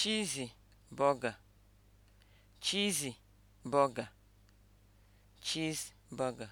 cheesy burger cheesy burger cheeseburger